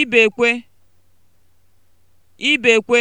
ibekwe ibekwe